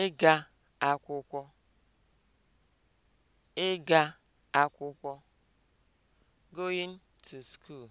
ịga akwụkwọ ịga akwụkwọ (going to school)